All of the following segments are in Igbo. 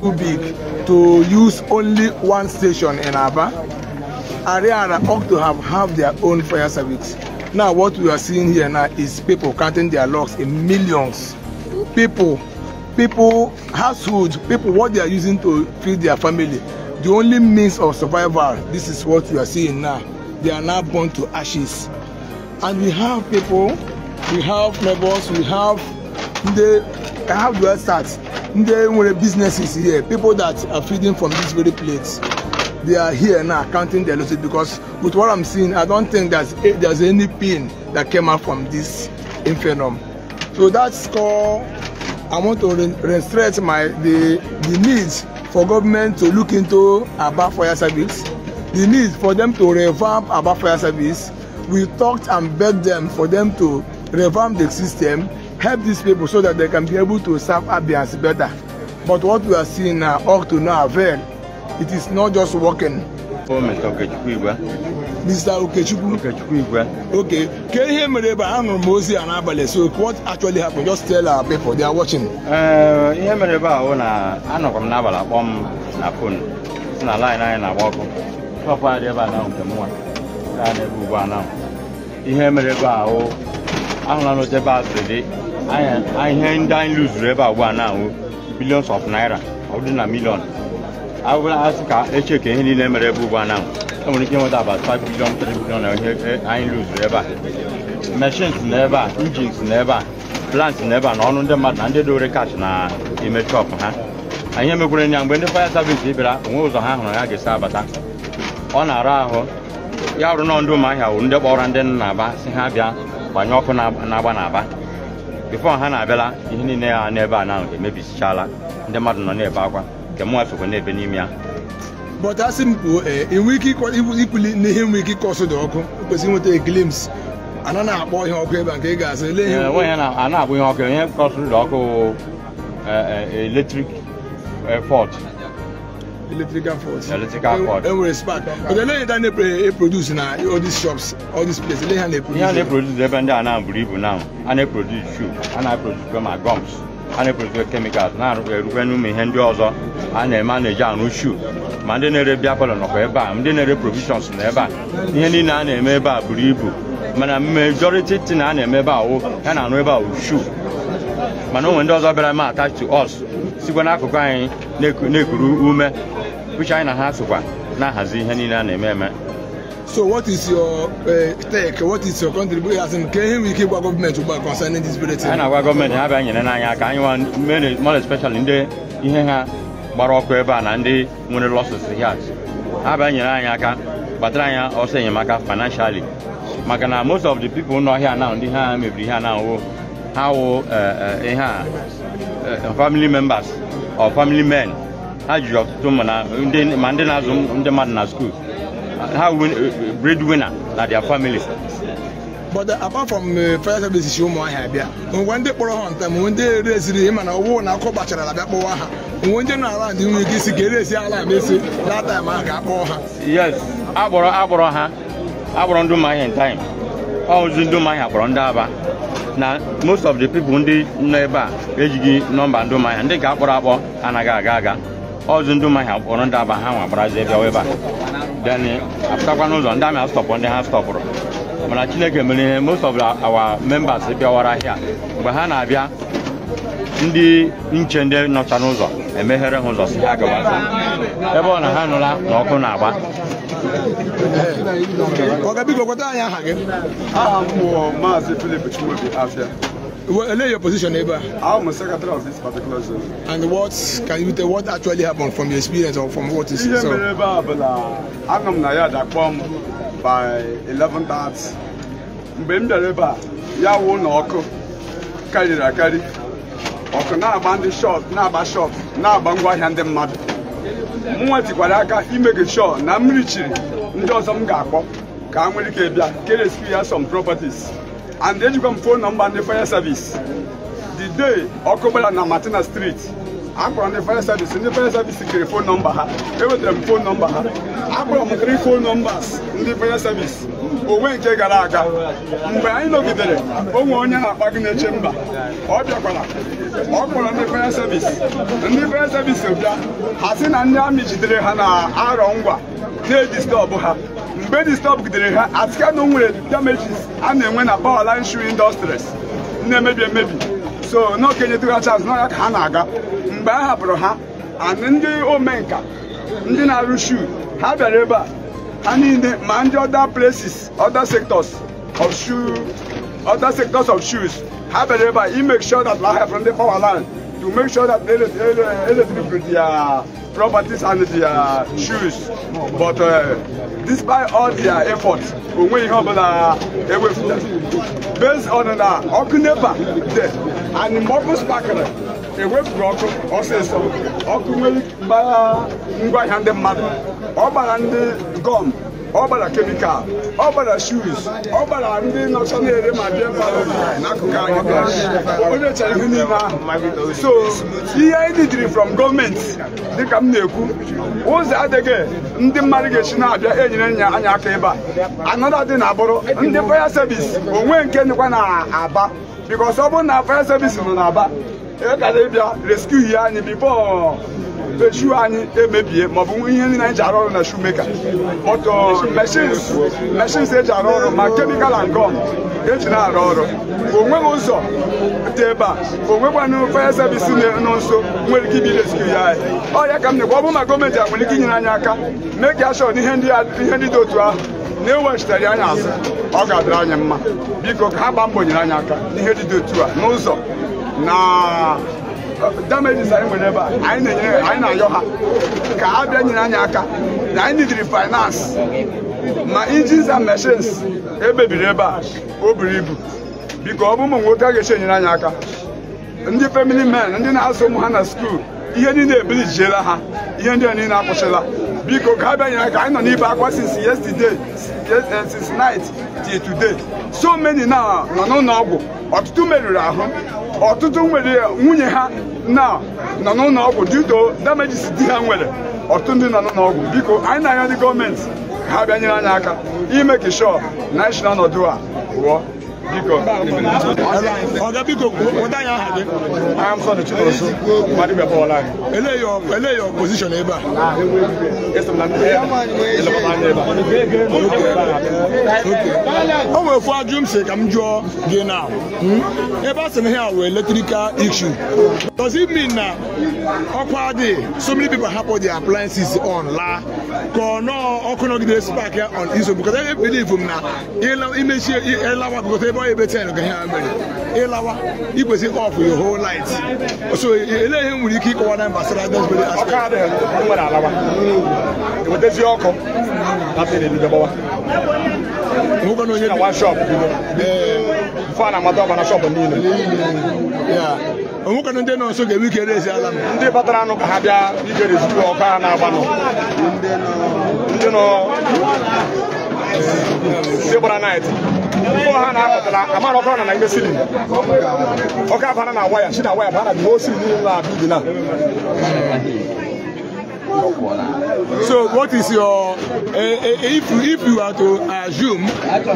Too big to use only one station in Aba. Ariara ought to have have their own fire service. Now what we are seeing here now is people counting their logs in millions. People, people, households, people, what they are using to feed their family. The only means of survival, this is what we are seeing now. They are now born to ashes. And we have people, we have neighbors, we have the can have well start ndị nwere businesses here people that are feeding from this very plate they are here now counting their losses because with what i'm seeing i don't think there's there's any pain that came out from this infernum so that's called i want to re restrict my the the needs for government to look into aba fire service the need for them to revamp aba fire service we talked and begged them for them to revamp the system help these people so that they can be able to serve Abians better. But what we are seeing now all to no avail. It is not just working. Mr. Okechukwu Igwe. Mr. Okechukwu. Okechukwu Igwe. Okay. Can you hear me? a nụrụ m ozi a n'abalị so what actually happened just tell our people they are watching. Uh, mere ebe ahụ I'm anọkwa m I'm akpọ m na fon si na line anyị na-agba ọkụ. Pọpụ adị ebe a na nke m nwa gaa n'ebe ugbu a na ihe mere ebe ahụ ahụla n'oche ihe ndị anyị lụzuru ebe a ugbu a na-ahụ billions of naira ọ dị na million asị ka eche ka ihe niile mere ebe ugbu a na e nwere ike nweta about 5 billion 3 billion na ihe anyị lụzuru ebe a machines na ebe a injins na ebe a plants na ebe a na ọnụ ndị mmadụ na ndị dowere cash na ime ha anyị emekwere nya mgbe ndị fire service bịara onwe ụzọ ha hụrụ ya ga-esi abata ọ na-ara ahụ ya rụrụ nọ ndị ụmụahịa wụ ndị kpọrọ ndị nna aba si ha bịa gbanye ọkụ na-agba n'aba bifo ha na-abịala ihe ni niile ya n'ebe a na emebisichaala ndị mmadụ nọ n'ebe akwa nke mụnwa sokwa n'ebe n'ime ya but a sị m kwuo enwe ike ikuli n'ihe nwee ike ịkọsụ dị ọkụ kwesịrị nweta eklims a na-akpọ ihe ọkụ ebe a nke ị ga-asị ele ihe a na-akpọ ihe ọkụ ihe kọsụrụ dị ọkụ eletrik fọt electrical fault. Electrical fault. Enwere spark. But then later they produce na all these shops, all these places. They have produce. Yeah, they produce ebe ndị a na-abụrụ ibu na eh, eh, oh, a na-eproduce oh, shoe, a na-eproduce ma gums, a na produce chemicals, na-erukwe n'ume ihe ndị ọzọ a na-eme a na-eji arụ shoe. Ma ndị na-ere bịa palọ nọkwa ndị na-ere provisions na ebe a. Ihe niile a na-eme ebe a ibu. Mana majority tin a na-eme ebe a wụ ya na-arụ ebe a wụ shoe. mana onwe ndị ọzọ bịara ma attach to us sikwa n'akụkụ anyị na-ekuru ume which anyị na ha sokwa na-ahazi ihe niile a na-eme eme So what is your uh, take? What is your country As in, can we keep our government about concerning this very thing? Anyị na-agwa gọọmenti ha bịa nyere n'anya aka anyị nwa more especially ndị ihe ha gbara ọkụ ebe a na ndị nwere losses here ha bịa nyere anyị aka kpatara anyị ọsọ enyemaka financially maka na most of the people nọ here now ndị ha mebiri ihe na-awụ Uh, uh, eh, ha wụ ihe a family members or family men ha jiri ọtụtụ ma ndị na-azụ ndị mmadụ na skuul ha uh, breadwinner na their family but apart from fire services ụmụahịa abịa onwe ndị kpọrọ ha ndị ereziri na ha onwe ndị na ndị nwere ike isi ala na taim ahụ ga-akpọ ha yes ha ozi ndị ụmụahịa kpọrọ ndị aba na most of the people ndị nọ ebe a ejighị nọmba ndị ụmụahịa ndị ga-akpọrọ akpọ anaghị aga aga ọzụ ndị ụmụahịa kpọrọ ndị aba ha nwa gbarazie bịawa ebe a then apụtakwa n'ụzọ ndị amị astọpụ ndị ha stọpụrụ mana chineke mere ihe most of our members bịawara ahịa mgbe ha na-abịa ndị nche ndị nọcha n'ụzọ emeghere ha ụzọ si ha gawazi ebe ọ na ha nụla na ọkụ na-agba ọ̀gá bí gbogbo tá a yàn hàgẹ́. a ah, mọ̀ maazị philip chimabi afia. Well, your position, neighbor. I'm a secretary of this particular zone. And what can you tell what actually happened from your experience or from what is so? I'm na ya da kwam by 11:30. Mgbe m dere ebe a, ya wụ na ọkụ karịrị akarị. Ọkụ na-agba ndị shọt, na-agba shọt, na-agba ngwa ahịa ndị mmadụ. nwa tikwara aka ime gị sure na mmiri chiri ndị ọzọ m ga-akpọ ka a nwere ike bịa ke rescue ya som properties and ejikwa m phone nọmba ndị fire service the day ọkụ gbara na Martina street akpọrọ ndị fire service ndị fire service kere phone nọmba ha ewetara m fon nọmba ha akpọrọ m three phone numbers ndị fire service onwe nke gara aga mgbe anyị nọgidere onwe onye na-akpa gị na-eche mba ọ bịakwara ọ kpọrọ ndị faya sevis ndị faya sevis bịa ha si na ndị amị jidere ha na arọ ngwa na-edistọbụ ha mgbe gidere ha asịka na onwere damages a na-enwe na power line shoe industries na-emebi emebi so n'okenyetụgha chance n'ọya ka ha na-aga mgbe a hapụrụ ha and ndị omenka ndị na-arụ shuu ha bịara ebe a and in the many other places other sectors of shoe other sectors of shoes have a labor he make sure that land from the power line to make sure that they let people their properties and their shoes but uh, despite all their efforts onwe ihe ọbụla ewefụta based on na ọkụ nepa dị and mgbe ọkụ spakịrị ewepụrụ ọkụ ọsịsọ ọkụ nwere ngwaahịa ndị mmadụ ọ gbara ndị gọm ọ gbara kemikal ọ gbara shuz ọ gbara ndị nọcha na-ere ma bịa n'akụkụ anyị onye ihe ahụ so ihe anyị didiri from gọọmenti dịka m na-ekwu ụzọ adịghị ndị mmadụ ga-esi na-abịa enyere nya anya aka ebe a na abụrụ ndị faya sevis onwe nke na aba ọ bụrụ na faya sevis nọ aba ịkara ịbịa rescue anyị bifo echu anyị emebie maọbụ ihe ndị anyị ji arụ ọrụ na shumeka ọtọ machines eji arụ ọrụ ma kemikal and gum eji na-arụ ọrụ onweghị ụzọ dị ebe a onwekwanụ fire service nọ nso nwere ike ibi ya anyị ọrịa a m na ọ bụrụ ma gọọmenti a ike inyere anyị aka mee ka ashọ ndị dị otu ahụ na-ewechitere anyị azụ ọ ga-adịrị anyị mma biko ka ha mbọ nyere anyị aka n'ihe dị otu a n'ụzọ na eh, damages anyị nwere ebe a anyị na-enye anyị na-ayọ ha ka ha bịa nyere anyị aka na anyị nidiri finance ma engines and machines ebebiri ebe a o buru ibu biko ọ bụ ụmụ nwoke a ga-eche enyere anyị aka ndị family men ndị na-azụ ụmụ ha na skuul ihe niile ebilijiela ha ihe ndị a niile akwụsịla biko ka ha bịanyere aka anyị nọ n'ibe akwa since yesterday since eh, night till today so many na nọ n'ụlọ ọgwụ ọtụtụ merụrụ ahụ ọtụtụ nwere nwunye ha na nọ n'ụlọ ọgwụ dito damages di ha nwere ọtụtụ ndị nọ n'ụlọ biko anyị na anya ndị gọọmenti ha bịa nyere anyị aka ime kishọ na nọdụ a pụọ ọga biko weta anyị aha gị o nwere ofu ajụ m si ka m jụọ gị na hmm? ebe a sị na ha were electrical issue does mi na ọkwa dị so many hapụ di appliances on la ka ọ nọọ ọkụ nọgide spark on iso because I m na ịlawa gote ebe ọ ebe ten ka ha mere ịlawa ikwesị ọf your light so ele ihe nwere ike ịkọwa na gbasara desbere ndị nọ nso ga-ewe ike rezi ala m ndị anụ ka ha bịa igere zuru a na-agbanụ ndị So what is your uh, if if you are to assume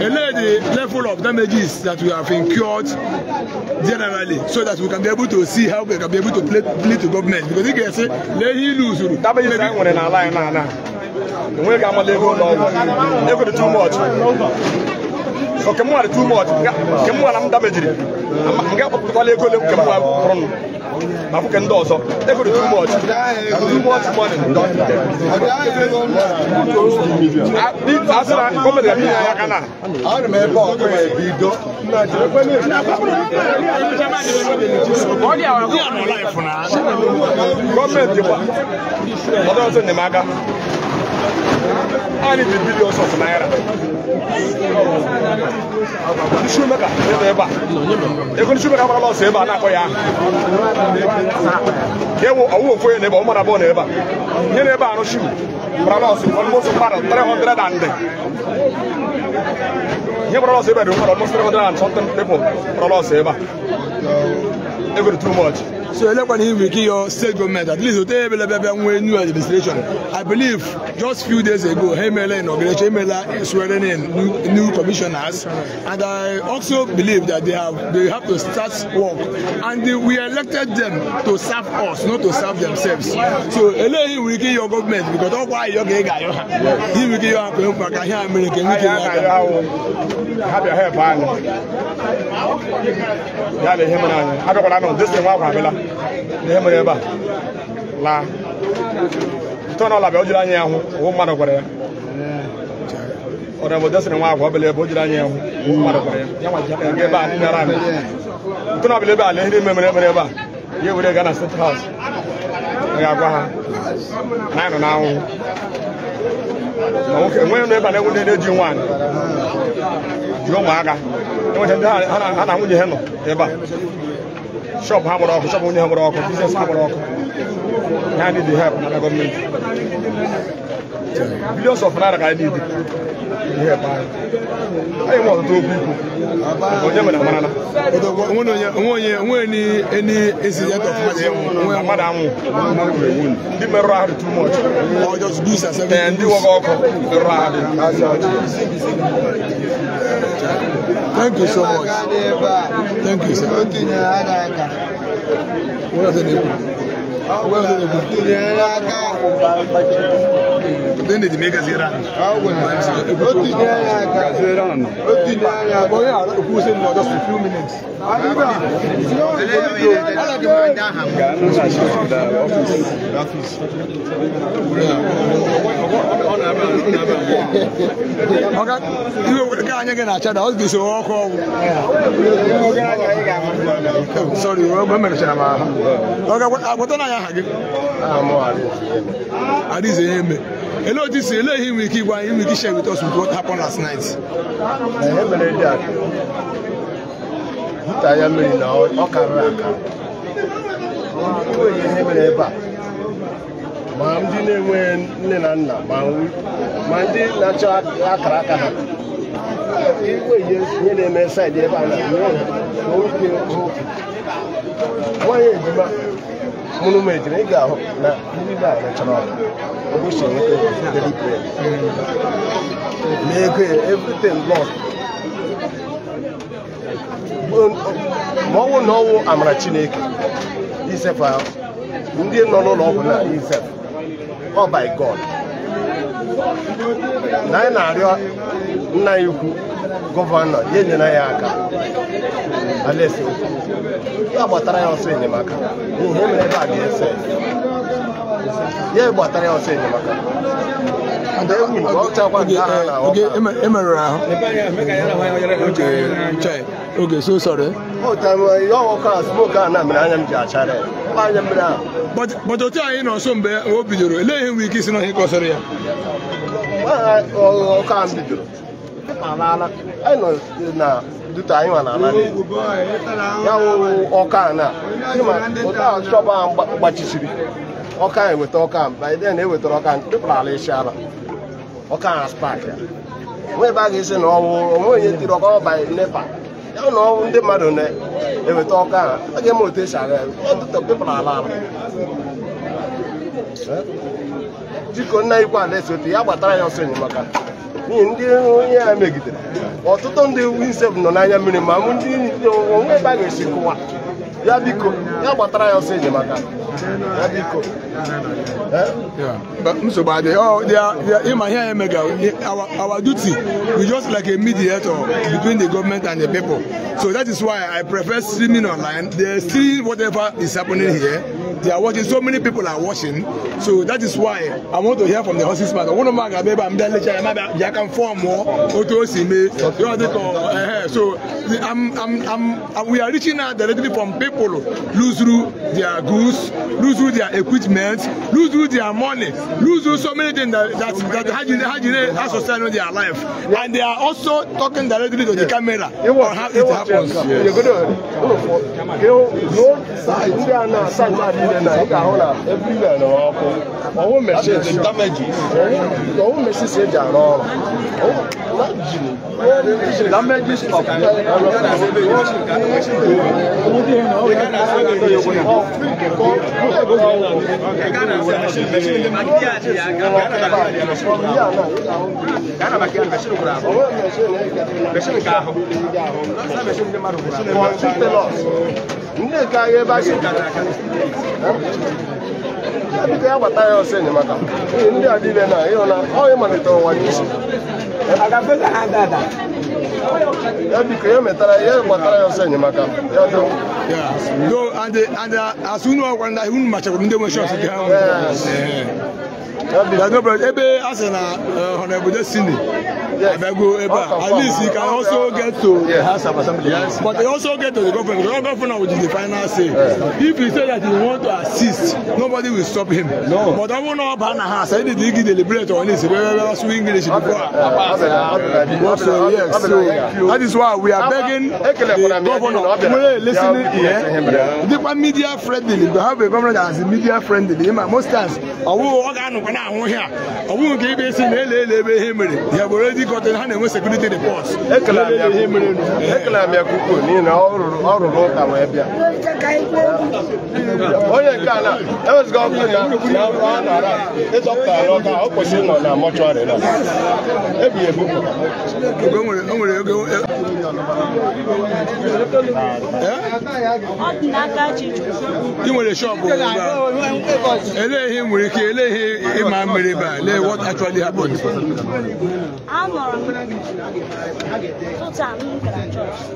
relay the level of damages that we have incurred generally so that we can be able to see how we can be able to play play to government because if can say let him lose uru. Damages ayi nwere n'ala anyị too much. nke mmadụ too much nke na m damejiri nga akpọpụtakwala ego ole nke mma ma ndị ọzọ ego too much too much money e asị na gọọmenti ga-abịa aka na I need the billions of naira. Ndị shoemaker ebe ebe a. Ego ndị shoemaker agbara lọsọ ebe a na-akpọ ya. Ewu ọwụ ofu onye n'ebe ọ mara abụọ n'ebe a. Ihe n'ebe a rụshi gbara lọsọ almost mmadụ 300 and ihe gbara lọsọ ebe a dị mmadụ almost 300 and something people gbara lọsọ ebe a. Ego dị too much. So Elekwana will give your state government at least they will new administration. I believe just few days ago, Hemela inaugurated Hemela swearing in new, new commissioners, and I also believe that they have they have to start work, and they, we elected them to serve us, not to serve themselves. So Elehi will give your government because all why you get guy, he will give you a company, he will give you a Have your hair, man. Yeah, the him and I. I don't know. This thing, what happened? ihe mere ebe a laa ntọ na ọla bịa o jiri anya ya hụ ụhụ mmadụ gwara ya ọdụ bụ desịrị nwa agwa ọbịla ebe o jiri anya ya hụ ụhụ mmadụ gwara ya ebe a nara anyị ntọ na ọbịla ebe a lee ihe mere mere ebe a ya ewere gaa na state house a ga-agwa ha na anyị nọ n'anwụ ma nwoke enweghị nụ ebe a na-egwu ndị na-eji nwaanyị jiri ụmụaka enweta ndị ha na nwunye ha nọ ebe a Shop ha gbara ọkụ shọp onye ha gbara ọkụ biznes ha gbara ọkụ ha dị help na gọọmenti billions of naira ka anyị na-ede ihe ebe anyị anyị nwe ọtụtụ okwu ikwu onye mere amarala onwe onye incident of mmadụ anwụ ndị merụrụ ahụ too much ndị nwoke ọkụ merụrụ ahụ Thank you so much. Thank you, sir. What are the name? Where are the name? mega zera? make us Iran. Iran. But yeah, who said no, just a few minutes. o Ọ̀gá iwe were ka anyị gị na-acha da ọ ga-esi ọkụ ọgwụ. Sọrị, mgbe merechara m ahụ. Ọga agwọta na anya aha gị. Ah, Adịghịzi ihe eme. ele otu si ele ihe nwere ike igwa anyị share with us with what happened last night eh, ya mmiri na ebe a ma ndị na enwe nne na nna ma ndị na-achọ akara aka ha enweghị ihe na-eme saịdị ebe a na nwanyị ejima monument na ị ga-ahụ na ndị be a chọrọ ụbọchị enweta na ego everything lost ma ọnwụ na ọnwụ amara chineke isef ahụ ndị nọ n'ụlọ ọgwụ na isef ọ by god na anyị na-arịọ nna ya ukwu gọvanọ ya enyere ya aka alaeze ya gbatara ya ọsọ enyemaka n'ihi emere ebe a ga-ese ya gbatara ya ọsọ enyemaka oke e ahụ bọtụ otu anyị mgbe o bidoro elee ihe nwere ike isi n'ọhịa ka ya anyị nọ na duta anyị nwa ya ọka na gbachisiri ọka eweta ọka biden ewetara ọka tụpụrụ ala isi ala ọka na ya ebe a ga-esi na ọwụ onwe onye tiri ọka ọba nepa ya na ndị mmadụ na-eweta ọka a ga-eme otu esi aga ala ala dịka nna ikwu ala esi ya gbatara ya ọsọ enyemaka n'ihi ndị onye a megidere ọtụtụ ndị win nọ n'anya mmiri ma mụ ndị onwe ebe a ga-esi kụwa ya biko ya gbatara ya ọsọ eje maka ya biko nsogbu adịghị ịma ihe anyị mega our duty we just like a mediator between the government and the people so that is why i prefer streaming online they see whatever is happening here they are watching so many people are watching so that is why i want to hear from the horses man ọwụrụ m aga ebe a mbịa lecha ya mabịa bịa ka m fọọ mụọ otu o si mee so I'm, I'm, I'm, we are reaching out directly from people people lose through their goods, lose through their equipment, lose through their money, lose through so many things that that, that Hajine, Hajine has society sustain their life. Yeah. And they are also talking directly to yeah. the camera it was, on how it, it happens. damages of ndị nke agha ebe a ga-ebite ya gbata ya ọsọ enyemaka ndị a dịile na ịhụ na ọ ịmalite ụwa n'isi ya biko ya metara ya gbatara ya ọsọ enyemaka ya do do ande ande asụ unu ọgwara na unu machakwuru ndị nwe shọs gị ahụ ebe a sị na destiny abịago ebe a at least you can also get to yeah, house of assembly yes. but you also get to the government the government will be the final say if he say that he want nobody will stop him. No. But ọmọ náà bá na ha sẹ́yìn dìde igi deliberate ọ̀hún ẹ̀sìn bẹ́ẹ̀ bẹ́ẹ̀ sún English before. So yes, so that is why we are begging the governor wey listening here. Nípa media friendly, we have a government that is media friendly. Most times, I will ànùkọ́ náà àwọn here. I will give si na ele ele ebe ihe have already gotten ha na-enwe security reports. Ekele amị akwụkwọ, ekele amị akwụkwọ n'ihi na ọ rụrụ ụta wee bịa. Onye Lagos government na run around ịzọpụta ya n'ọka ọ kwesịrị nọ na mọchụarị na ebi ebupụ ị nwere shọpụ elee ihe nwere ike elee ihe ịma mmiri ebe a lee what actually happened amụrụ m tụta m gara chọọchị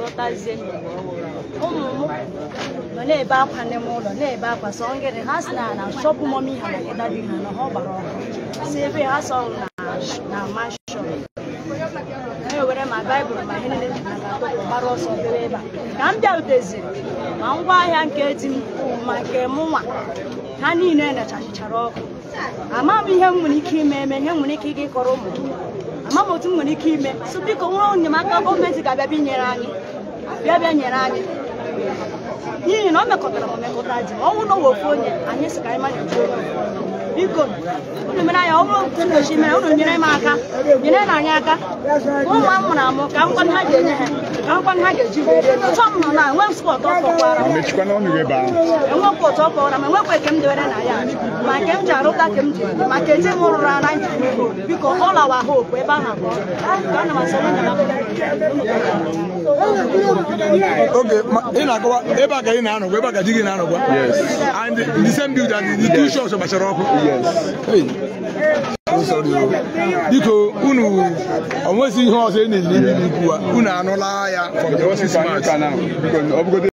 lọtazie n'ụwa ọhụrụ ụmụ m nọ na-ebe akwa n'ime ụlọ na-ebe akwa sọ ngịrị ha si na na shọpụ mọmi ha maka dadi ha na ha gbara ọkụ si ebe ha sọ na mashọn na-ewere ma baịbụl ma ihe niile gbara ọsọ bere ebe a ka m bịaruteziri ma ngwa ahịa nke di m ma nke m nwa ha niile nachachichara ọkụ ama m ihe m nwere ike ime eme ihe m nwere ike ịga ịkọrọ ụmụ m ama m otu m nwere ike ime so biko nwa enyemaka gọọmenti ga-abịa bịa nyere anyị bịa bịa nyere anyị n'ihi na ọ mekọtara ma ọ mekọta ji ọnwụ na owe onye anyị sị ka anyị manye ji onye biko unu mere anyị ọ bụrụ ntu mere unu nyere m aka nyere na anyị aka ụmụ m mụrụ amụ ka nkwado ha ga-enye ha ka nkwado ha ga-eji m nọ na enwe spọt ọkọkwara enwekwa enwekwa eke m na ya ma nke m ji arụta ka m ji maka eji m rụrụ ara nji biko ọla wa ebe ahụ abụọ ana m asọ Okay, Oh. biko unu ihe ọzọ e unu anụla ya